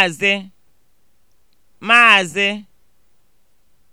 Maazị Maazị